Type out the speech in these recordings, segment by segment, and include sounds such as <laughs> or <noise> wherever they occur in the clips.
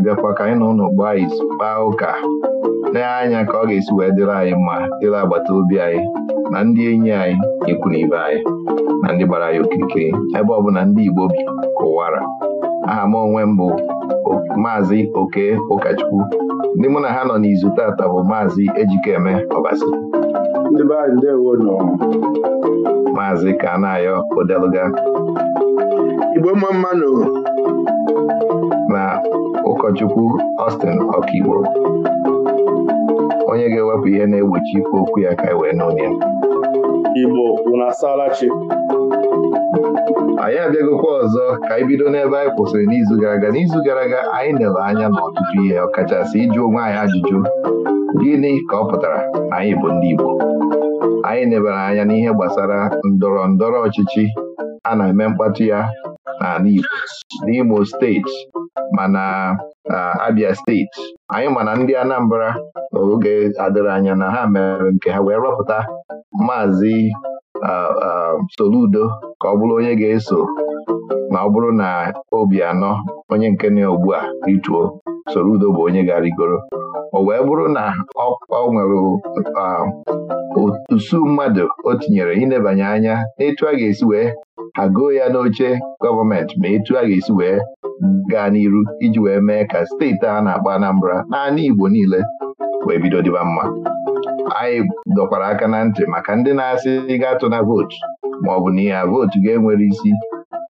na-abịakwa ka anyị nọ ụnụ gbaa izu kpaa ụka lee anya ka ọ ga-esi wee dịrị anyị mma dịrị agbata obi anyị na ndị enyi anyị ikwu ibe anyị na ndị gbara anyị okirikiri ebe ọ bụ na ndị Igbo bi kụwara aha m onwe m bụ maazị Oke ụkọchukwu ndị mụ na ha nọ n'izu tata bụ maazị Ejikeme Ọbasi maazị ayọ Odeluga Igbo mma mmanụ ụkọchukwu Austin Ọkaigbo onye ga-ewepụ ihe na-egbochi ikwu okwu ya ka e wee n'onye Igbo unu asaala chi anyị abịagokwa ọzọ ka anyị bido n'ebe anyị kwụsịrị n'izu gara aga n'izu gara aga anyị na anya n'ọtụtụ ihe ọkachasị ịjụ onwe anyị ajụjụ gịnị ka ọ pụtara na anyị bụ ndị Igbo anyị nebara anya n'ihe gbasara ndọrọ ndọrọ ọchịchị a na-eme mkpatụ ya n'ala Igbo n'Imo steeti mana Abia steeti anyị mana ndị Anambra oge adịrị anya na ha mere nke ha wee rọpụta maazị uh, uh, Soludo ka ọ bụrụ onye ga-eso na ọ bụrụ na obi anọ onye nke na ugbu a rituo soro udo bụ onye ga arigoro o wee bụrụ na ọ nwere usu mmadụ o tinyere ịnebanye anya n'etu a ga-esi wee agụọ ya n'oche gọọmenti ma etu a ga-esi wee gaa n'iru iji wee mee ka steeti a na akpa Anambra naanị Igbo niile wee bido dịba mma anyị dọkwara aka na ntị maka ndị na-asị ị ga-atụ na vootu ma ọ bụ na ya vootu ga-enwere isi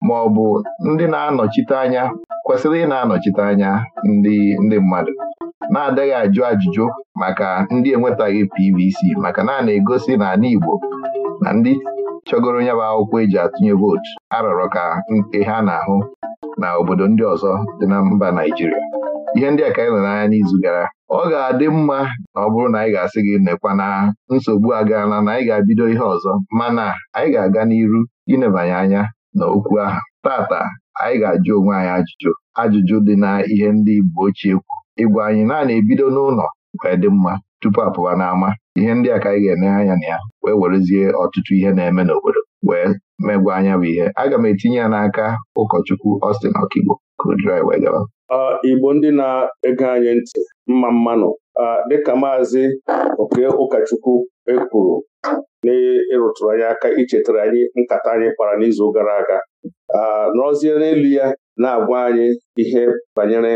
ma ọ bụ ndị na-anọchite anya kwesịrị ị na-anọchite anya ndị ndị mmadụ na-adịghị ajụ ajụjụ maka ndị enwetaghị PVC maka na na-egosi na ala Igbo na ndị chọgoro ya bụ akwụkwọ eji atụnye vootu arọrọ ka nke ha na-ahụ na obodo ndị ọzọ dị na mba Naịjirịa ihe ndị a ka anyị nọ n'anya n'izu gara ọ ga-adị mma na ọ bụrụ na anyị ga-asị gị nekwa na nsogbu agaala na anyị ga abido ihe ọzọ mana anyị ga-aga n'iru inebanye anya na okwu ahụ tata anyị ga-ajụ onwe anyị ajụjụ ajụjụ dị na ihe ndị Igbo ochie kwu ịgwa anyị naanị ebido n'ụlọ wee dị mma tupu apụwa n'ama ihe ndị a ka anyị ga-eneghe anya na ya wee werezie ọtụtụ ihe na-eme n'obodo wee megwa anya bụ ihe aga m etinye ya n'aka ụkọchukwu Austin Okigbo ka Igbo ndị na-ege anyị ntị mma mmanụ dịka maazị oke ụkọchukwu ekwuru n'ịrụtụrụ anyị aka ichetara anyị nkata anyị kpara n'izu gara aga nọrọzie n'elu ya na-agwa anyị ihe banyere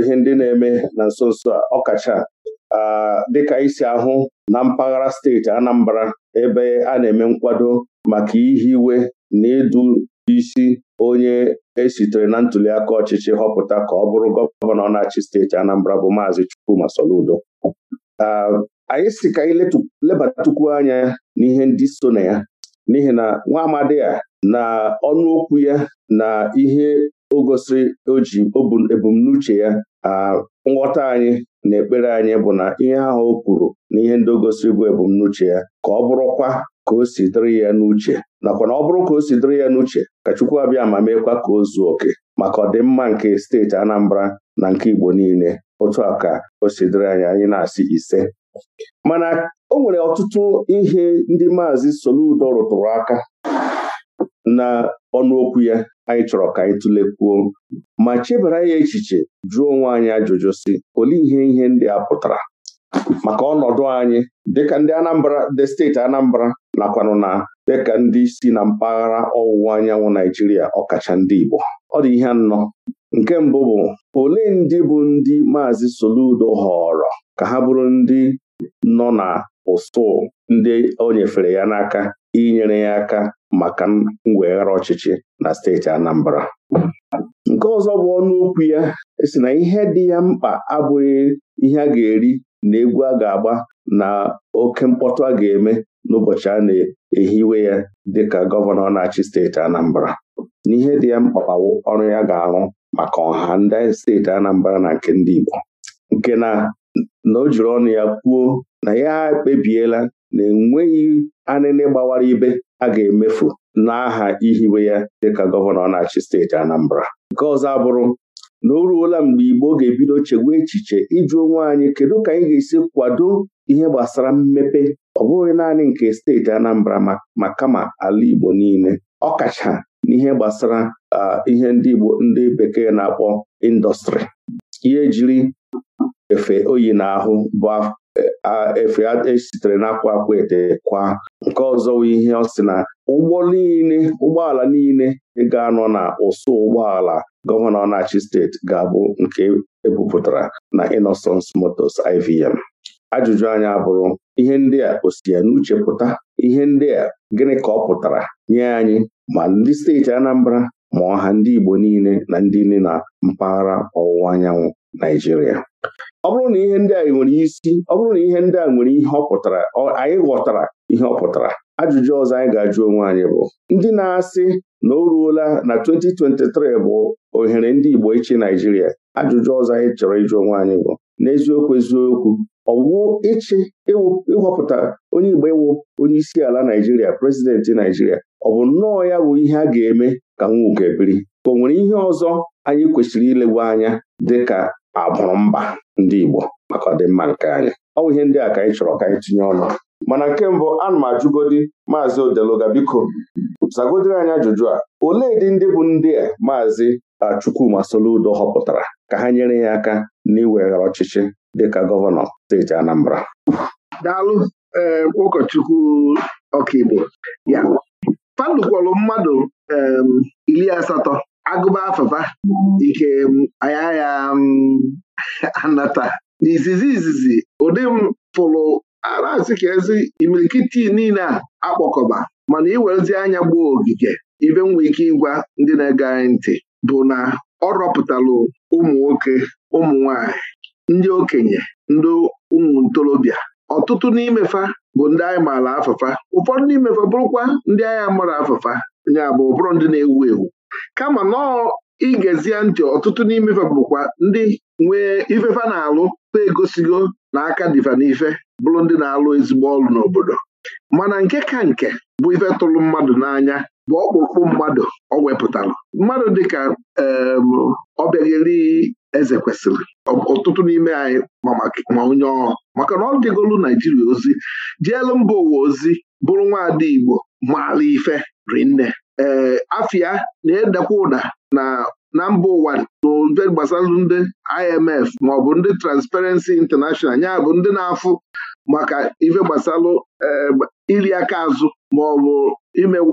ihe ndị na-eme na nso nso a ọkacha dịka isi ahụ na mpaghara steeti Anambra ebe a na-eme nkwado maka ihe iwe na ịdụ isi onye esitere na aka ọchịchị họpụta ka ọ bụrụ gọvanọ na-achị steeti Anambra bụ maazị Chukwuma Soludo ah, anyị si ka anyị lebatukwu anya n'ihe ndị so na ya n'ihi na nwa amadi a na ọnụokwu ya na ihe o gosiri o ebumnuche ya ah, nghọta anyị na ekpere anyị bụ na ihe ahụ o kwuru na ihe ndị o gosiri bụ ebumnuche ya ka ọ bụrụkwa ka o si dịrị ya n'uche nakwa na ọ bụrụ ka o si dịrị ya n'uche ka Chukwu abịa ma meekwa ka o zuo oke maka ọdịmma nke steeti Anambra na nke Igbo niile otu a ka o si anyị anyị na-asị ise mana o nwere ọtụtụ ihe ndị maazị Soludo rụtụrụ aka na ọnụokwu ya anyị chọrọ ka anyị tụlekwuo ma chebara ya echiche jụọ onwe anyị ajụjụ si olee ihe ihe ndị a pụtara maka ọnọdụ anyị dịka ndị Anambra ndị steeti Anambra nakwanụ na dịka ndị si na mpaghara ọwụwa anyanwụ Naijiria ọkacha ndị Igbo ọ dị ihe anọ nke mbụ bụ olee ndị bụ ndị Maazị Soludo họrọ ka ha bụrụ ndị nọ na ụsụ ndị o nyefere ya n'aka inyere ya aka maka mweghara ọchịchị na steeti Anambra nke ọzọ bụ ọnụ okwu ya e si na ihe dị ya mkpa abụghị ihe a ga-eri na egwu a ga-agba na oke mkpọtụ a ga-eme n'ụbọchị a na-ehiwe ya dịka gọvanọ na-achị steeti Anambra n'ihe dị ya mkpa ọrụ ya ga-arụ maka ọha ndị steeti Anambra na nke ndị Igbo nke na na o jiri ọnụ ya kwuo na ya ekpebiela na enweghị anịnị gbawara ibe a ga-emefu n'aha ihiwe ya dịka gọvanọ na-achị steeti Anambra nke ọzọ abụrụ na o ruola mgbe Igbo ga-ebido chegwa echiche ịjụ onwe anyị kedu ka anyị ga-esi kwado ihe gbasara mmepe ọ bụghị naanị nke steeti Anambra ma kama ala Igbo niile ọkacha n'ihe gbasara ah, ihe ndị Igbo ndị bekee na-akpọ indọstrị ihe jiri efe oyi n'ahụ bụ efe esitere n'akwa akwa ete kwa nke ọzọ ihe ọ sị na ụgbọ niile ụgbọala niile ga-anọ na ụsụ ụgbọala gọvanọ na-achị steeti ga-abụ nke ebupụtara na Innocence motos IVM ajụjụ anya bụrụ ihe ndị a o si ya n'uche pụta ihe ndị a gịnị ka ọ pụtara nye anyị ma ndị steeti Anambra ma ọha ndị Igbo niile na ndị niile na mpaghara ọwụwa anyanwụ Naijiria ọ bụrụ na ihe ndị a nwere isi ọ bụrụ na ihe ndị a nwere ihe ọ pụtara anyị ghọtara ihe ọ pụtara ajụjụ ọzọ anyị ga-ajụ onwe anyị bụ ndị na-asị na o ruola na 2023 bụ ohere ndị Igbo ịchị Naijiria ajụjụ ọzọ anyị chọrọ ịjụ onwe anyị bụ n'eziokwu eziokwu ọwụ ịchị ịhọpụta onye Igbo ịwụ onye isi ala Naijiria prezidenti Naijiria ọ bụ nnọọ ya bụ ihe a ga-eme ka nwuke biri ka o nwere ihe ọzọ anyị kwesịrị ilewu anya dịka abụrụ mba ndị Igbo maka ọdịmma nke anyị ọ bụ ihe ndị a ka anyị chọrọ ka anyị tinye ọnụ mana nke mbụ ana m ajụgodi maazị odeloga biko zagodiri anyị ajụjụ a olee dị ndị bụ ndị a maazị Chukwuma Soludo họpụtara ka ha nyere ya aka n'iweghara ọchịchị dịka gọvanọ steeti Anambra daalụ eh, ụkọchukwu ọkaigbo ya kwọrọ mmadụ iri asatọ agụba afafa ike um, anya ya um, <laughs> anata n'izizi izizi ụdị m pụrụ arasị ka ezi imirikiti niile a akpọkọba mana iwerezi anya gbuo ogige ibe nwe ike ịgwa ndị na-ege anyị ntị bụ na ọ rọpụtalụ ụmụ nwoke ụmụ nwanyị ndị okenye ndị ụmụ ntorobịa ọtụtụ n'imefa bụ ndị anyị maara afafa, ụfọdụ n'imefa bụrụkwa ndị anyị amara afafa ya bụ ụbụrụ ndị na-ewu ewu kama nọọ igezie ntị ọtụtụ n'ime ife bụkwa ndị nwee ifefa na-alụ na egosigo na aka diva n'ife bụrụ ndị na-alụ ezigbo ọrụ n'obodo mana nke ka nke bụ ife tụrụ mmadụ n'anya bụ ọkpụkpụ mmadụ ọ wepụtara mmadụ dịka ọbịagheri eze kwesịrị ọtụtụ n'ime anyị ma onye ọrụ maka na ọ dịgolu Naijiria ozi jeelu mba ụwa ozi bụrụ nwaada Igbo maara ife rinne ee eh, afịa na-edekwa ụda na na mba ụwa n'obe gbasara ndị IMF maọbụ ndị Transparency International ya bụ ndị na-afụ maka ife gbasalụ eh, iri aka azụ maọbụ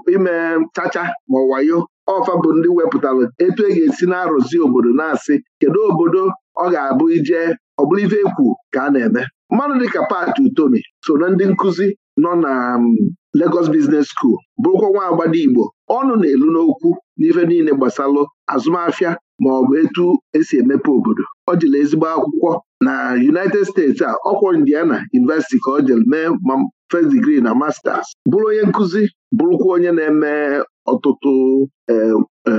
ime chacha ma wayo ọfa bụ ndị wepụtara etu e ga-esi na-arụzi obodo na-asị kedu obodo ọ ga-abụ ije ọ bụrụ ife ekwu ka a na-eme mmadụ dịka Pat Utomi so na ndị nkụzi nọ na mm, Lagos Business School bụrụkwa nwa agbada Igbo ọnụ na-elu n'okwu n'ife niile gbasalụ azụmahịa ma ọ bụ etu esi emepe obodo ọ jiri ezigbo akwụkwọ na United States a ọkwọ Indiana University ka ọ jere mee ma first degree na masters bụrụ onye nkụzi bụrụkwa onye na-eme ọtụtụ e, e,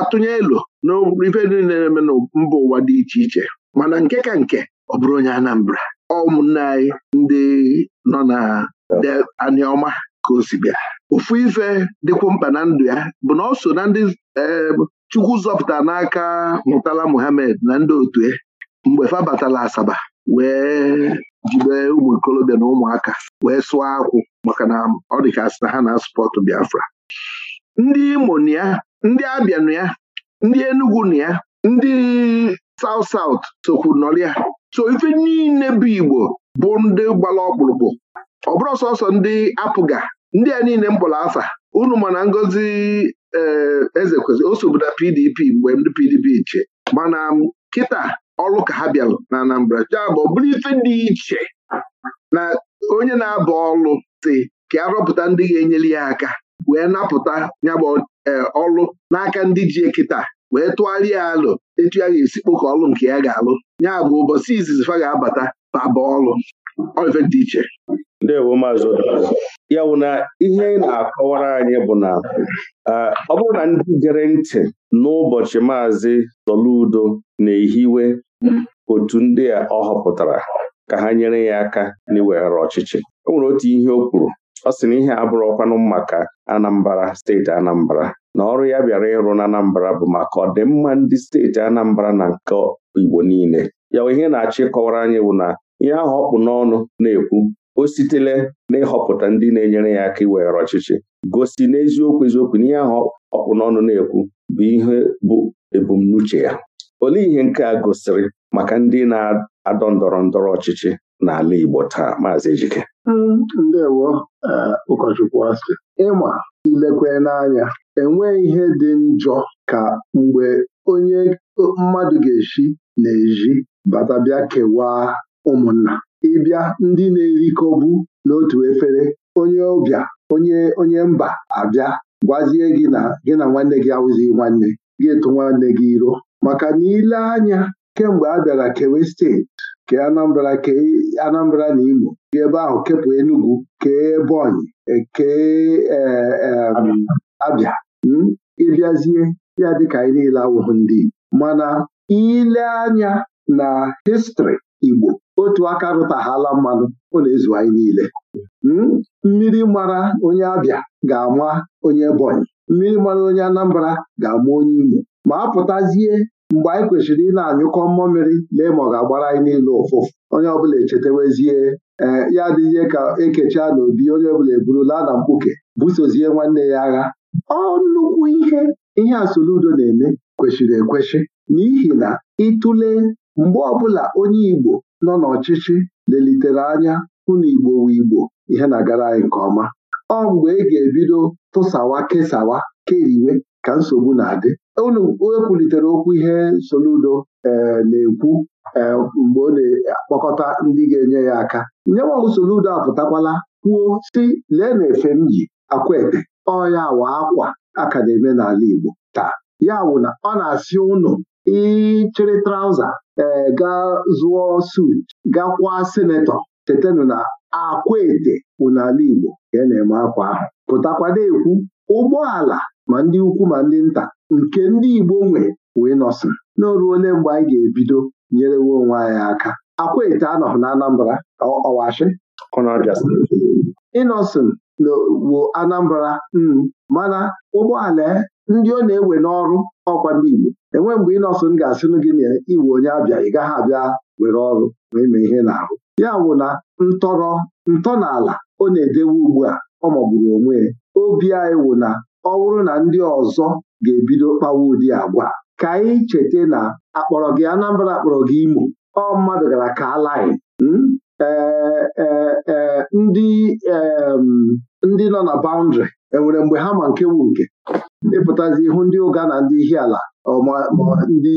atụnye elo n'ife niile na-eme na mba ụwa dị iche iche mana nke ka nke ọ bụrụ onye Anambra ọ ụmụnne anyị ndị nọ na aniọma ka o si bịa Ofu ife dịkwu mkpa na ndụ ya bụ na ọ so na ndị Chukwu zọpụta n'aka Murtala Muhammed na ndị otu ya e, mgbe fabatala Asaba wee jibe ụmụ ikolobịa na ụmụaka wee sụọ akwụ maka na ọ dị ka na ha na-asụpọtụ Biafra ndị Imo na ya ndị Abịa na ya ndị Enugu na ya ndị saut saut sokwu nọrịa so ife niile bụ Igbo bụ ndị gbara ọkpụrụkpụ ọ bụrụ sọsọ ndị apụga ndị a niile m kpọrọ afa unu mana Ngozi eh, eze kwesịrị o sobu PDP mgbe ndị PDP iche mana kịta ọrụ ka ha bịarụ na Anambra jabụ bụrụ ife dị iche na onye na-abụ ọrụ si ka a rọpụta ndị ga-enyere ya aka wee napụta nyabụ eh, ọrụ n'aka ndị ji kịta wee tụgharịa alụ etu ya ga-esi ka ọrụ nke ya ga-alụ nyabụ ụbọchị izizi fa ga-abata baba ọrụ ife dị iche ndewo maazị ya bụ na ihe na-akọwara anyị bụ na ọ bụrụ na ndị gere ntị n'ụbọchị maazị Soludo na-ehiwe otu ndị a ọ họpụtara ka ha nyere ya aka n'iweghara ọchịchị o nwere otu ihe o kwuru ọ sị na ihe abụrụ ọkwanụ maka Anambra steeti Anambra na ọrụ ya bịara ịrụ na Anambra bụ maka ọdịmma ndị steeti Anambra na nke Igbo niile ya ihe na achị kọwara anyị bụ na ihe ahụ ọkpụ n'ọnụ na-ekwu o sitele n'ịhọpụta ndị na-enyere ya aka iweghara ọchịchị gosi n'eziokwu eziokwu na ihe ahụ ọkpụ n'ọnụ na-ekwu bụ ihe bụ ebumnuche ya olee ihe nke a gosiri maka ndị na-adọ ndọrọ ndọrọ ọchịchị n'ala Igbo taa maazị Ejike mm, ndewo eh, ụkọchukwu asị ịma ilekwe n'anya enweghị ihe dị njọ ka mgbe onye mmadụ ga-esi na-eji bata bịa kewaa ụmụnna ịbịa ndị na-erikọbu n'otu efere onye ọbịa onye onye mba abịa gwazie gị na gị na nwanne gị awụzi nwanne gị etu nwanne gị iro maka na ile anya kemgbe a bịara kewe steeti ke Anambra kee Anambra na igbo gị ebe ahụ kepụ Enugu kee Ebonyi e, kee e, e, Abịa hmm? ịbịazie ya dịka anyị niile awụghị ndị mana ile anya na histrị Igbo otu aka rụtaghala mmanụ ọ na-ezu anyị niile hmm? mmiri mara onye Abịa ga-ama onye Ebonyi mmiri mara onye Anambra ga-ama onye Imo ma apụtazie pụtazie mgbe anyị kwesịrị ị na-anyụkọ mmụọ mmiri lee ma ọ ga-agbara anyị niile ụfụfụ onye ọbụla echetewezie ee ya adịghị ka ekechaa n'obi onye ọbụla eburula na mkpuke busozie nwanne ya agha ọ nnukwu ihe ihe asoludo na-eme kwesịrị ekwesị n'ihi na ịtụle mgbe ọbụla onye Igbo nọ n'ọchịchị lelitere anya hụ na Igbo wu Igbo ihe na-agara anyị nke ọma ọ mgbe ị e ga-ebido tụsawa kesawa keriwe ka nsogbu na-adị unu ekwulitere okwu ihe Soludo e, na-ekwu e, mgbe ọ na-akpọkọta ndị ga-enye ya aka nyewa Soludo apụtakwala kwuo si lee na efe m ji akwaete ọ ya wa akwa a ka na-eme n'ala Igbo taa ya wụ na ọ na-asị ụnụ chere trauza ee eh, gaa zụọ sut gakwa senetọ chetanụ na akwa ete bụ n'ala Igbo ka e na-eme akwa ahụ pụtakwa na-ekwu ụgbọala ma ndị ukwu ma ndị nta nke ndị Igbo nwe wee nọsị na mgbe anyị ga-ebido nyerewe onwe anyị aka akwa ete anọghị na Anambra ọwashi ịnọsịn Anambra mana ụgbọala eh, ndị ọ na-ewe n'ọrụ ọkwa ndị Igbo enwe mgbe ị m ga-asịnụ gị na iwe onye abịa ị gaghị abịa were ọrụ ma mee ihe na ahụ ya wụ na ntọrọ ntọala ọ na-edewe ugbu a ọ magburu onwe obi anyị wụ na ọ bụrụ na ndị ọzọ ga-ebido kpawa ụdị agwa ka anyị cheta na akpọrọ gị Anambra akpọrọ gị Imo ọ mmadụ gara ka alaghị hmm? e, e, e, ndị nọ na baụndịrị enwere mgbe ha ma nke wu nke ịpụtazi ihu ndị ụga na ndị ihiala ma ndị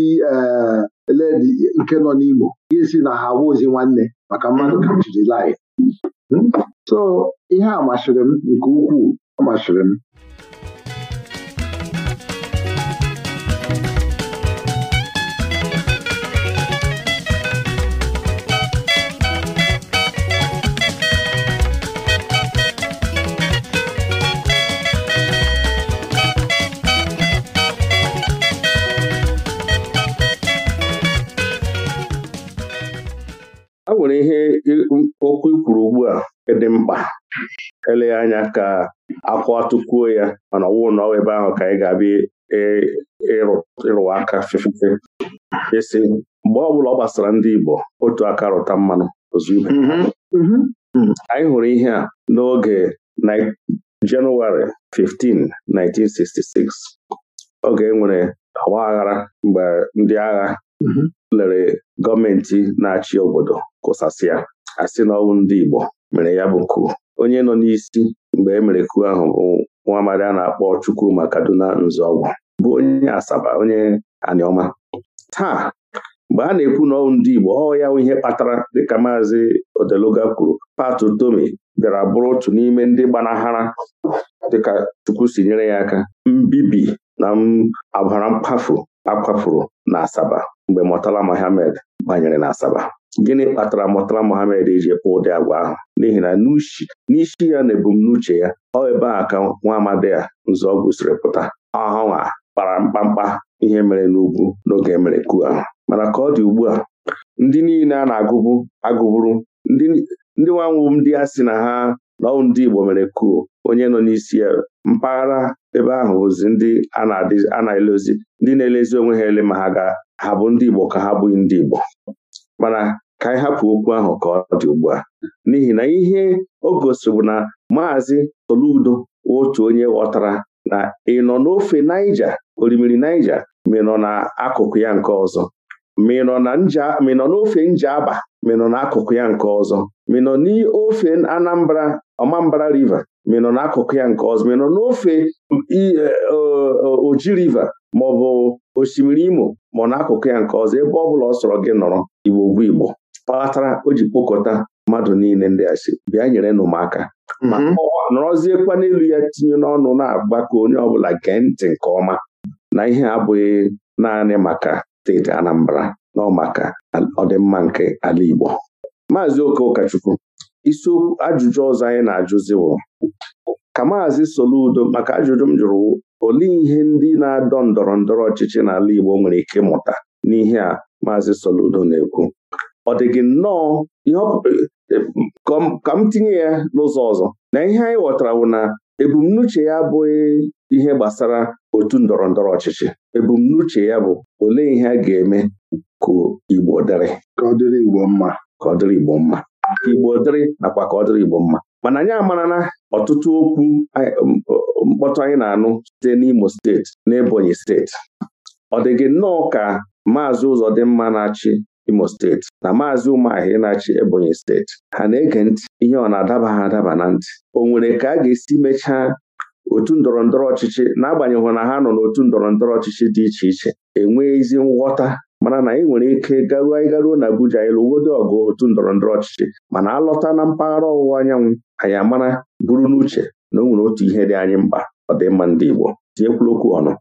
eledi eh, nke nọ n'Imo ga-esi na ha awụzi nwanne maka mmadụ kachiri lai hmm? so ihe a masịrị m nke ukwuu ọ m Um, okwu ikwuru kwuru ugbu a dị mkpa eleghị anya ka akwa tukwuo ya mana ọwụụ na ebe ahụ ka anyị ga-abịa ịrụwa aka fefefe isi mgbe ọbụla ọ gbasara ndị Igbo otu aka rụta mmanụ ozugbo mm-hmm. mm-hmm. hmm. anyị hụrụ ihe a n'oge Jenụwarị 15, 1966 oge e nwere aghara mgbe ndị agha mm-hmm. lere gọọmenti na-achị obodo kụsasịa asị na ndị Igbo mere ya bụ ku onye nọ n'isi mgbe e mere ku ahụ bụ nwa amadi a na-akpọ Chukwuma Kaduna Nzọgwụ bụ onye Asaba onye Anioma taa mgbe a na-ekwu na ọnwụ ndị Igbo ọ ya ihe kpatara dịka maazị Odeluga kwuru Patu Tomi bịara bụrụ otu n'ime ndị gbanahara dịka Chukwu si nyere ya aka mbibi na ọbara mkpafu akwafuru na Asaba mgbe Murtala Mohammed banyere na Asaba gịnị kpatara mụtara Mohammed iji kpụ ụdị agwa ahụ n'ihi na n'isi ya na ebumnuche ya ọ ebe a ka nwa amadi a nzọọgwụ siri pụta ọhanwa kpara mkpamkpa ihe mere n'ugwu n'oge mere ku ahụ mana ka ọ dị ugbu a ndị niile a na-agụbu ndị nwanwụ ndị a sị na ha n'ọwụ ndị Igbo mere kuo onye nọ n'isi ya mpaghara ebe ahụ bụzi ndị a na elezi ndị na-elezi onwe ha ele ma ha ga ha bụ ndị Igbo ka ha bụghị ndị Igbo mana ka anyị hapụ okwu ahụ ka ọ dị ugbu a n'ihi na ihe o gosiri bụ na maazị toludo otu onye ghọtara na ị nọ n'ofe Naija orimiri Naija ma na akụkụ ya nke ọzọ na nja nọ n'ofe Njaba ma ị n'akụkụ ya nke ọzọ ma n'ofe Anambra Ọmambara River ma n'akụkụ ya nke ọzọ ma n'ofe Oji River ma ọ bụ osimiri Imo ma ọ n'akụkụ ya nke ọzọ ebe ọ bụla ọ sọrọ gị nọrọ Igbo bụ Igbo kpatara o ji kpokọta mmadụ niile ndị asị bịa nyere nụ m aka ma mhm. nọrọziekwa n'elu ya tinye n'ọnụ na-agba ka onye ọbụla gee ntị nke ọma na ihe abụghị naanị maka steeti Anambra nọ maka ọdịmma nke ala Igbo Maazị Oke Ụkọchukwu isiokwu ajụjụ ọzọ anyị na-ajụziwo ka Maazị Soludo maka ajụjụ m jụrụ olee ihe ndị na-adọ ndọrọ ndọrọ ọchịchị n'ala Igbo nwere ike ịmụta n'ihe a maazị Soludo na-ekwu ọ dịghị nnọọ eh, ka m tinye ya n'ụzọ ọzọ na ihe anyị ghọtara bụ na ebumnuche ya abụghị ihe gbasara otu ndọrọ ndọrọ ọchịchị ebumnuche ya bụ olee ihe a ga-eme ka Igbo dịrị ka ọ dịrị Igbo mma ka ọ dịrị Igbo mma ka dịrị nakwa ka ọ dịrị Igbo mma mana anyị amarana ọtụtụ okwu mkpọtụ anyị na-anụ site n'Imo steeti na Ebonyi steeti ọ dị gị nnọọ ka maazị ụzọdịmma na-achị imo steeti na maazị ụmụahị na-achị ebonyi steeti ha na-ege ntị ihe ọ na-adaba ha adaba na ntị o nwere ka a ga-esi mechaa otu ndọrọ ndọrọ ọchịchị n'agbanyeghị na ha nọ n'otu ndọrọ ndọrọ ọchịchị dị iche iche e ezi nghọta mana na anyị nwere ike garuo anyị garuo na Abuja anyị ọgụ otu ndọrọ ndọrọ ọchịchị mana alọta na mpaghara ọwụwa anyanwụ anyị amara buru n'uche na o nwere otu ihe dị anyị mkpa ọdịmma ndị Igbo tinyekwula ọnụ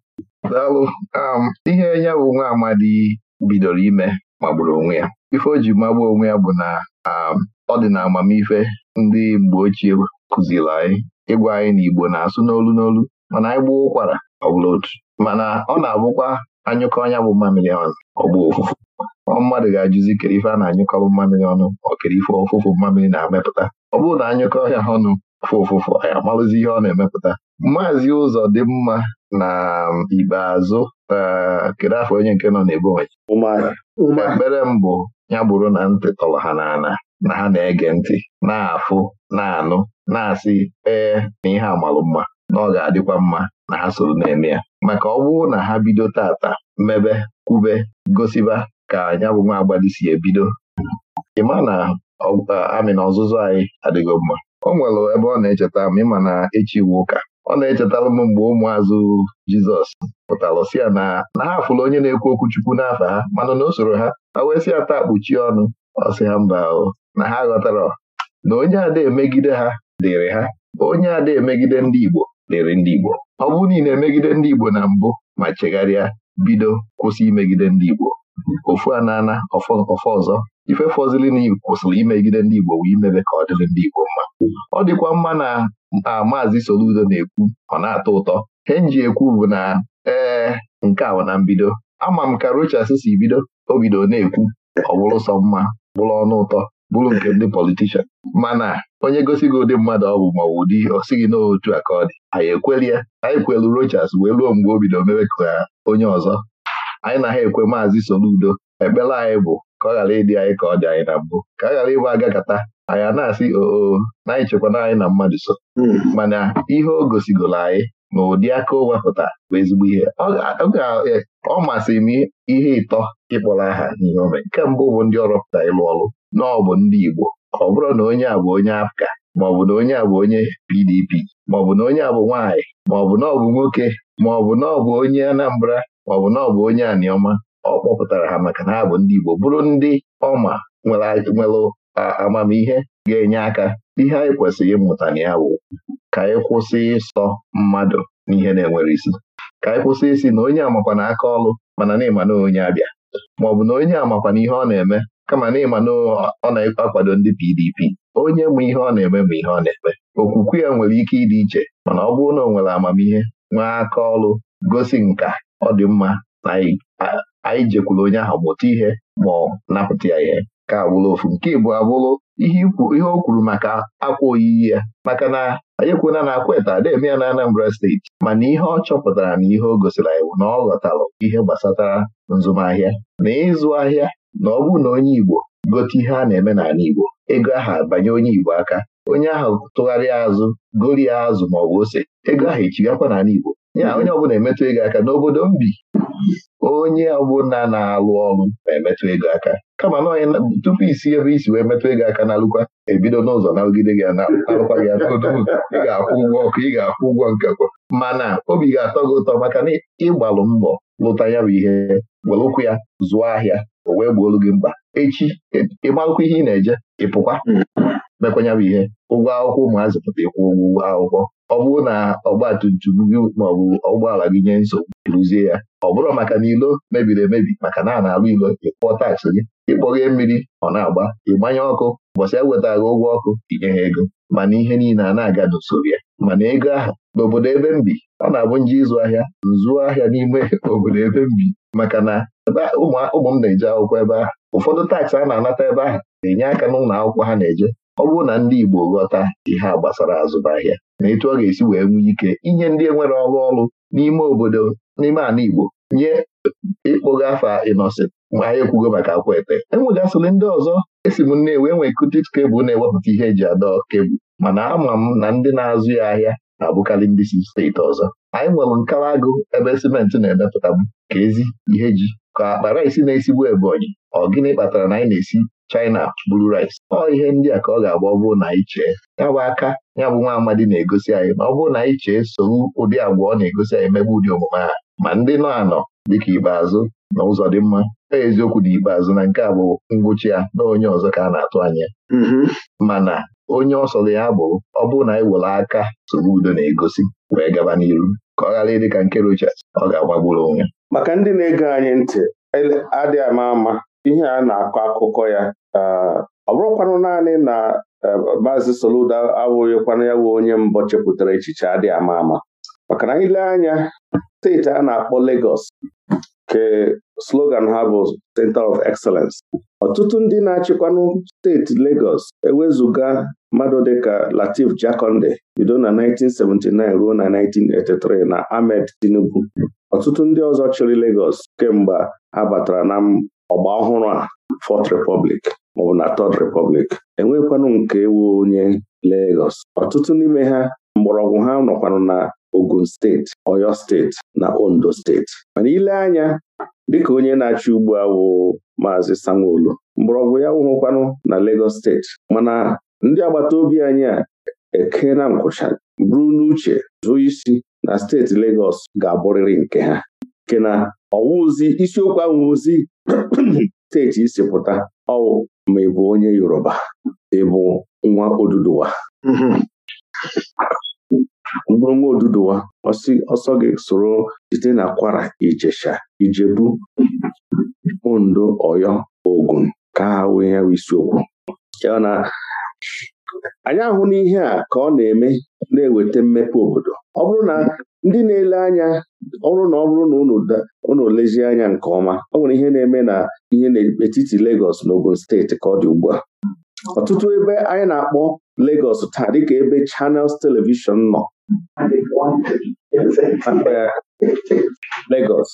daalụ um, ihe ya bụ nwa amadi bidoro ime magburu onwe ya ife o ji magbu onwe ya bụ na um, ọ dị na amamife ndị mgbe ochie kụziri anyị ịgwa anyị na Igbo na-asụ n'olu n'olu mana anyị gbuo ụkwara ọ bụla otu mana ọ na-abụkwa anyụkọ ọnya bụ mmamịrị ọnụ ọgba ofufu mmadụ ga-ajụzi kere ife a na-anyụkọba mmamịrị ọnụ ọ kere ife ọfụfụ mmamịrị na-amepụta ọ bụrụ na anyụkọ ọhịa ọnụ fụfụfụ anyị amalụzi ihe ọ na-emepụta maazị ụzọ dị mma na um, ikpeazụ uh, kedu afọ onye nke nọ n'ebonyi ekpere mbụ ya bụrụ na ntị tọrọ ha n'ana na ha na-ege ntị na-afụ na-anụ na-asị ee na ihe amalụ na ọ ga-adịkwa mma na ha soro na-eme ya maka ọ bụrụ na ha bido tata mebe kwube gosiba ka ya bụ nwa agbadi si ebido ịma na uh, amị na ọzụzụ anyị adịgo mma o nwere ebe ọ na-echeta m ịma na echi iwu ụka ọ na-echetara m mgbe ụmụazụ Jizọs pụtara si ya na na ha fụrụ onye na-ekwu okwu Chukwu n'afọ ha mana na o ha ha wee sị ya taa kpuchie ọnụ ọ sị ha mba o na ha ghọtara na onye ada emegide ha dịrị ha onye ada emegide ndị Igbo dịrị ndị Igbo ọ bụrụ na ị emegide ndị Igbo na mbụ ma chegharịa bido kwụsị imegide ndị Igbo ofu anana ọfọ ọzọ ife fọzili na kwụsịrị imegide ndị Igbo wee imebe ka ọ dịrị ndị Igbo mma ọ dịkwa mma na maazị Soludo na-ekwu ọ na-atọ ụtọ he nji ekwu bụ na ee nke a na mbido ama m ka Rochas si bido o bido na-ekwu ọ bụrụ sọ mma bụrụ ọnụ ụtọ bụrụ nke ndị politishan mana onye gosi gị ụdị mmadụ ọ bụ ma ọ bụ ụdị o sighị n'otu a ka ọ dị anyị ekweli ya anyị kwelu Rochas wee ruo mgbe o bido mebe ka onye ọzọ anyị na ha ekwe maazị Soludo ekpere anyị bụ ka ọ ghara ịdị anyị ka ọ dị anyị na mbụ ka a ghara ịgba agakata anyị a na-asị oo na anyị anyị na mmadụ so hmm. mana ihe o gosigoro anyị na ụdị aka o wepụta bụ ezigbo ihe e, ọ masịrị m ihe ịtọ ịkpọrọ aha n'ihe ome nke mbụ bụ ndị ọrọpụta ịlụ ọrụ na ọ bụ ndị Igbo ka ọ bụrụ na onye a bụ onye Afka maọbụ na onye a bụ onye PDP maọbụ na onye a bụ nwaanyị maọbụ na ọ bụ nwoke maọbụ na ọ bụ onye Anambra maọbụ na ọ bụ onye Aniọma ọ kpọpụtara ha maka na ha bụ ndị Igbo bụrụ ndị ọma nwere amamihe ga-enye aka ihe anyị kwesịrị ịmụta na ya bụ ka anyị kwụsị ịsọ mmadụ n'ihe na-enwere isi ka anyị kwụsị isi na onye amakwa na aka ọlụ mana na onye abịa ma ọ bụ na onye amakwa na ihe ọ na-eme kama na ịma na ọ na-akwado ndị PDP onye ma ihe ọ na-eme ma ihe ọ na-eme okwukwe ya nwere ike ịdị iche mana ọ bụrụ na ọ nwere amamihe nwee aka ọlụ gosi nka ọ dị mma na anyị jekwuru onye ahụ mụta ihe ma ọ napụta ya ihe ka abụrụ ofu nke ịbụ abụrụ ihe o kwuru maka akwa oyiyi ya maka na anyị ekwuona na akweta eme ya na Anambra steeti mana ihe ọ chọpụtara na ihe o gosiri anyị bụ na ọ ghọtara ihe gbasatara nzụmahịa na ịzụ ahịa na ọ bụrụ na onye Igbo gote ihe a na-eme n'ala Igbo ego ahụ abanye onye Igbo aka onye ahụ tụgharịa azụ gorie azụ ma ọ bụ ose ego ahụ echigakwa n'ala Igbo ya onye ọbụla emetụ ego aka n'obodo m bi onye ọbụla na-alụ ọrụ na-emetụ ego aka kama na onye tupu isi ebe isi wee metụ ego aka n'alụkwa ebido n'ụzọ na-alụgide gị na-alụkwa gị ị ga-akwụ ụgwọ ọkụ ị ga-akwụ ụgwọ nkekwa mana obi ga-atọ gị ụtọ maka na ịgbalụ mbọ lụta ya bụ ihe were ụkwụ ya zụọ ahịa o wee gbuolu gị mkpa echi ịmalụkwa ihe ị na-eje ịpụkwa. mekwanya bụ ihe ụgwọ akwụkwọ ụmụazị pụta ịkwụ ụgwọ akwụkwọ ọ bụrụ na ọgbatumtum gị maọbụ ụgbọala gị nye nsogbu rụzie ya ọ bụrụ maka na ilo mebiri emebi maka na a na-alụ ilo ịkpọ taksị gị ịkpọghee mmiri ọ na-agba ịgbanye ọkụ ụbọchị ewetaghị ụgwọ ọkụ inye ha ego mana ihe niile a na-aga n'usoro ya mana ego ahụ n'obodo ebe m bi ọ na-abụ nje ịzụ ahịa nzụọ ahịa n'ime <laughs> obodo ebe m bi maka na ụmụ m na-eje akwụkwọ ebe ahụ ụfọdụ taksị a na-anata ebe ahụ na-enye aka n'ụlọ akwụkwọ ha na-eje ọ bụrụ na ndị Igbo ghọta ihe a gbasara azụmahịa na etu ọ ga-esi wee nwee ike inye ndị enwere ọrụ ọrụ n'ime obodo n'ime ala Igbo nye ịkpọga afa Innocent ma anyị ekwugo maka akwete enwegasịrị ndị ọzọ esi m nnewi enwe kutit kebụl na-ewepụta ihe eji adọ kebụl mana ama m na ndị na-azụ ya ahịa na-abụkarị ndị si steeti ọzọ anyị nwere nkara agụ ebe simenti na-emepụta m ka ezi ihe ji ka akpara rice na-esigbu Ebonyi ọ gịnị kpatara na anyị na-esi China buru rice ọ ihe ndị a ka ọ ga-agba ọ bụrụ na chee ya bụ aka ya bụ nwa amadi na-egosi anyị ma ọ bụrụ na anyị chee soro ụdị agwa ọ na-egosi anyị megbe ụdị omume ha ma ndị nọ anọ dịka ikpeazụ na ụzọ dị mma eziokwu na ikpeazụ na nke a bụ ngwụcha ya na onye ọzọ ka a na-atụ anya mm-hmm. mana onye ọsọ ya bụ ọ bụrụ na anyị aka soro udo na-egosi wee gaba n'iru ka ọ ghara ịdị ka nke Rochas ọ ga-agbagburu onwe maka ndị na ego anyị ntị adịghị ama ama ihe a na-akọ akụkọ ya ọ bụrụkwanụ naanị na e, maazị Soludo abụghịkwana ya bụ onye mbụ chepụtara echiche adị ama ama maka na ile anya steeti a na-akpọ Legos ke slogan ha bụ Center of Excellence ọtụtụ ndị na-achịkwanụ steeti Legos ewezuga mmadụ dịka Latif Jakonde bido na 1979 ruo na 1983 na Ahmed Tinubu ọtụtụ ndị ọzọ chịrị Legos kemgbe ha batara na ọgba ọhụrụ a Fourth Republic maọbụ na Third Republic enwekwanụ nke ewu onye Legọs. ọtụtụ n'ime ha mgbọrọgwụ ha nọkwanụ na Ogun steeti Oyo steeti na Ondo steeti mana ile anya dịka onye na-achị ugbu a bụ Maazị sanwo mgbọrọgwụ ya wụhụkwanụ na legos steeti mana ndị agbata obi anyị a eke na nkwụcha buru n'uche zụọ isi na steeti legos ga-abụrịrị nke ha nke na ọwụzi isiokwu ahụ ozi steeti <clears throat> isi pụta ọwụ ma ị bụ onye Yoruba ị bụ nwa Oduduwa mkpụrụ mm-hmm. nwa Oduduwa ọsọ gị soro site na Kwara Ijesha Ijebu Ondo oyo Ogun ka ha wee ya isiokwu anyị ahụ n'ihe a ka ọ na-eme na-eweta mmepe obodo ọ bụrụ na ndị na-ele anya ọrụ na ọ bụrụ na unu lezie anya nke ọma ọ nwere ihe na-eme na ihe n'etiti Lagos na Ogun steeti ka ọ dị ugbu a ọtụtụ ebe anyị na-akpọ Lagos taa dịka ebe Channels Television nọ Lagos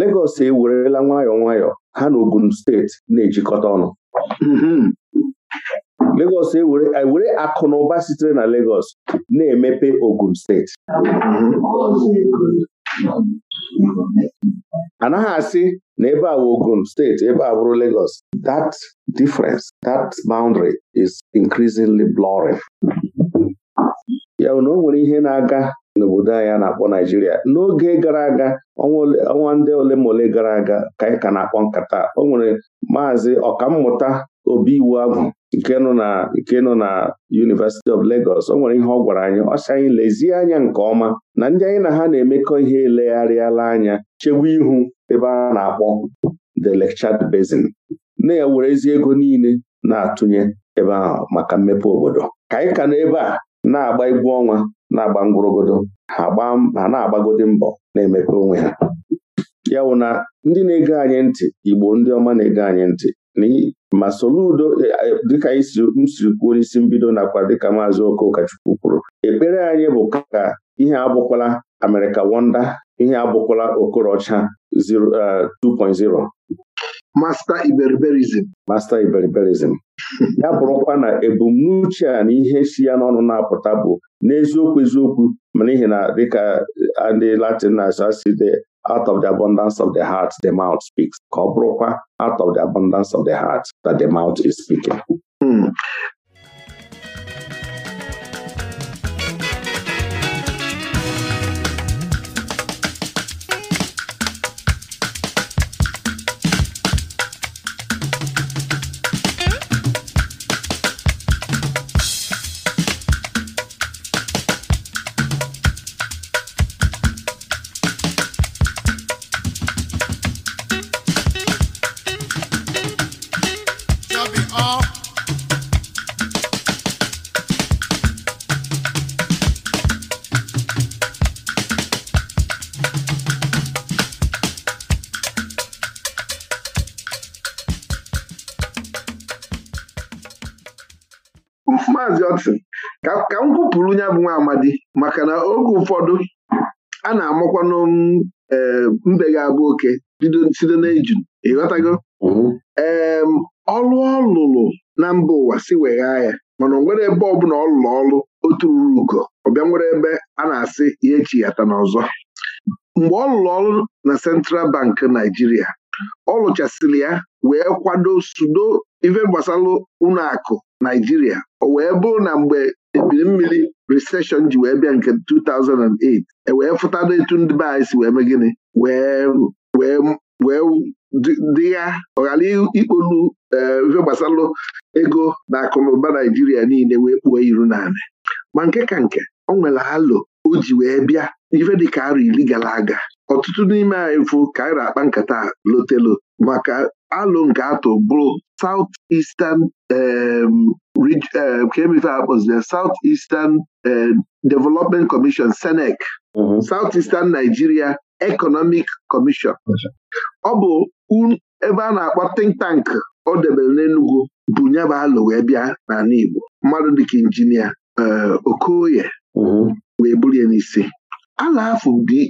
Lagos ewerela nwayọọ nwayọọ ha na Ogun steeti na-ejikọta ọnụ mm-hmm. Legọs ewere e akụ na ụba sitere na Legọs na-emepe Ogun steeti anaghị asị na ebe a Ogun steeti ebe a bụrụ legos that difference that boundary is increasingly blurring. ya na o nwere ihe na-aga n'obodo anyị na-akpọ Naijiria n'oge gara aga ọnwa ndị ole ma ole gara aga ka anyị ka na-akpọ nkata o nwere maazị ọkammụta obi iwu agwụ nke nọ na nke nọ na University of legos o nwere ihe ọ gwara anyị ọ sị anyị lezie anya nke ọma na ndị anyị na ha na-emekọ ihe elegharịala anya chewe ihu ebe a na-akpọ the Lake Chad Basin na ezi ego niile na-atụnye ebe ahụ maka mmepe obodo ka anyị ka n'ebe a na-agba egwu ọnwa na-agba ngwụrụgodo ha na-agbagodi mbọ na-emepe onwe ha ya bụ na ndị na-ege anyị ntị Igbo ndị ọma na-ege anyị ntị ma soludo e, dịka anyị si kwuo n'isi mbido nakwa dịka maazị Okokachukwu kwuru ekpere anyị bụ ka ihe abụkwala America Wonder ihe abụkwala Okorocha 2.0 Masta Iberiberizm. Masta ya bụrụkwa na ebumnuche a na ihe si ya n'ọnụ na-apụta bụ n'eziokwu eziokwu ma n'ihi na dịka e, ndị Latin na-asụ out of the abundance of the heart the mouth speaks ka ọ bụrụkwa out of the abundance of the heart that the mouth is speaking hmm. ụfọdụ a na-amụkwanụ eh, mbe ga-abụ oke site n'ejun ịghọtago mm-hmm. ee ọlụ ọ lụrụ na mba ụwa si weghaa ya mana o nwere ebe ọbụla ọ lụrụ ọlụ otu ruru ugo ọbịa nwere ebe a na-asị ihe na n'ọzọ mgbe ọ lụrụ ọrụ na Central Bank Naijiria ọ lụchasịrị ya wee kwado sudo ife gbasara ụlọ akụ Naijiria o wee bụrụ na mgbe ebiri mmiri recession ji wee bịa nke 2008 e wee fụtana etu ndị be anyị si wee mee gịnị wee dị ya ọghara ikpolu eh, ife gbasalụ ego na akụnụba Naijiria niile wee kpuo iru naanị ma nke ka nke ọ nwere halo o ji wee bịa ife ka arụ iri gara aga ọtụtụ n'ime anyị fụ ka anyị na-akpa nkata lotelo maka alụ nke atọ bụrụ South Eastern um, uh, ka emeve akpọziri South Eastern uh, Development Commission SENEC mm-hmm. South Eastern Nigeria Economic Commission ọ bụ ebe a na-akpọ think tank ọ debere n'Enugwu bụ nyaba alụ wee bịa n'ala Igbo mmadụ dịka injinia uh, Okoye mm-hmm. wee bulie n'isi ala afọ dị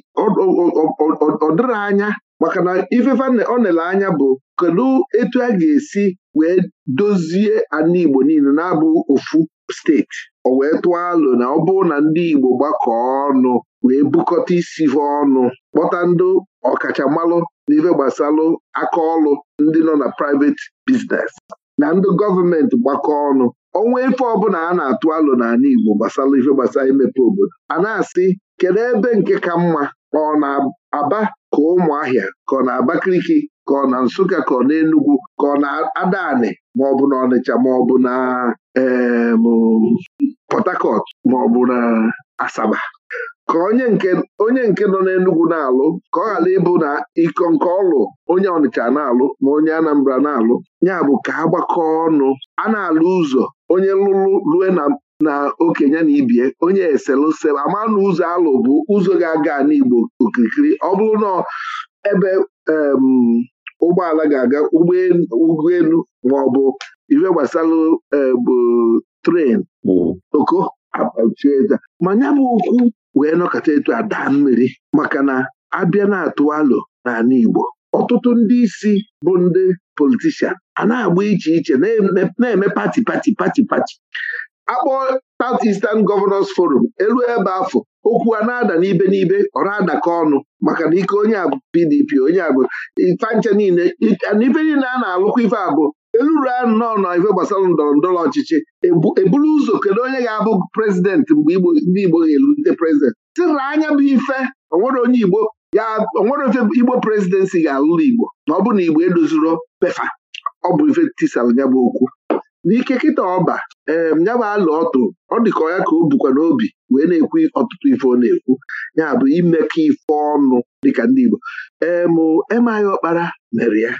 ọ dịrị anya maka na ifefe ọ nele anya bụ kedu etu a ga-esi wee dozie ala Igbo niile na-abụ ofu steeti o wee tụọ alụ na ọ bụrụ na ndị Igbo gbakọọ ọnụ wee bukọta isi ha ọnụ kpọta ndị ọkachamalụ n'ife gbasalụ aka ọlụ ndị nọ na private biznes na ndị gọọmenti gbakọ ọnụ ọnwa ife ọbụla a na-atụ alụ n'ala Igbo gbasara ife gbasara imepe obodo a na-asị kedu ebe nke ka mma ọ na-aba ka ahịa ka ọ na-abakaliki ka ọ na Nsụka ka ọ na Enugwu ka ọ na Adanị bụ na Ọnịcha bụ na ma ọ bụ na Asaba ka onye nke nọ n'Enugwu na-alụ ka ọ ghara ịbụ na iko nke ọlụ onye Ọnịcha na-alụ ma onye Anambra na-alụ ya bụ ka a gbakọ ọnụ a na-alụ ụzọ onye lụrụ rue na na okenye na ibie onye eselose ama na ụzọ alụ bụ ụzọ ga-aga n'Igbo okirikiri ọ bụrụ na ebe ụgbọala ga-aga ụgbọelu e, hmm. ma ọ bụ ife gbasara bụ tren oko ma ya bụ okwu wee nọkọta etu ada mmiri maka na abịa na-atụ alo n'ala Igbo ọtụtụ ndị isi bụ ndị politishan a na-agba iche iche na-eme pati pati pati pati akpọ South Eastern Governors Forum elu ebe afọ okwu a na-ada n'ibe n'ibe ọ na-adakọ ọnụ maka na ike onye abụ PDP onye abụ fancha niile ife niile a na-alụkwa ife abụ eluru anọ nọ ife gbasara ndọrọ ndọrọ ọchịchị eburu ụzọ kedu onye ga-abụ prezidentị mgbe ndị Igbo ga elute prezidentị tịra anya bụ ife onwere onye Igbo ya onwere ofe Igbo prezidensị ga-alụrụ Igbo ma ọ bụ na Igbo edoziro pefa ọ bụ ife tisara ya bụ okwu n'ike kịta ọba ee um, ya bụ alụ ọtụ ọ dịka ọya ya ka o bukwa n'obi wee na-ekwu ọtụtụ ife ọ na-ekwu ya bụ imekọ ife ọnụ dịka ndị Igbo emụ um, emaghị ọkpara mere ya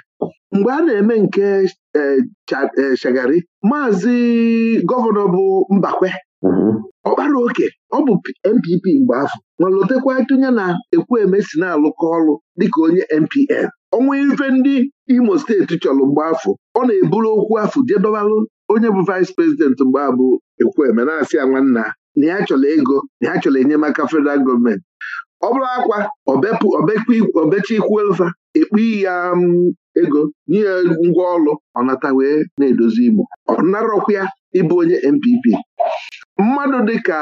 mgbe a na-eme nke shagari um, maazị gọvanọ bụ Mbakwe mm-hmm. ọkpara oke ọ bụ NPP mgbe afọ ma lotekwa tụnye na ekwu eme si na-alụkọ ọrụ dịka onye NPN ọnwa ife ndị Imo steeti chọrọ mgbe afọ ọ na-eburu okwu afọ jedobalụ onye bụ vaịs prezidenti mgbe abụ ekwueme na-asị ya nwanna na ya chọrọ ego na ya chọrọ enyemaka federal gọọmenti ọ bụrụ akwa obecha ikwuelfa ekpu ya um, ego nye ngwa ngwa ọ ọnata wee na-edozi Imo ọ narọkwa ya ịbụ onye NPP mmadụ dịka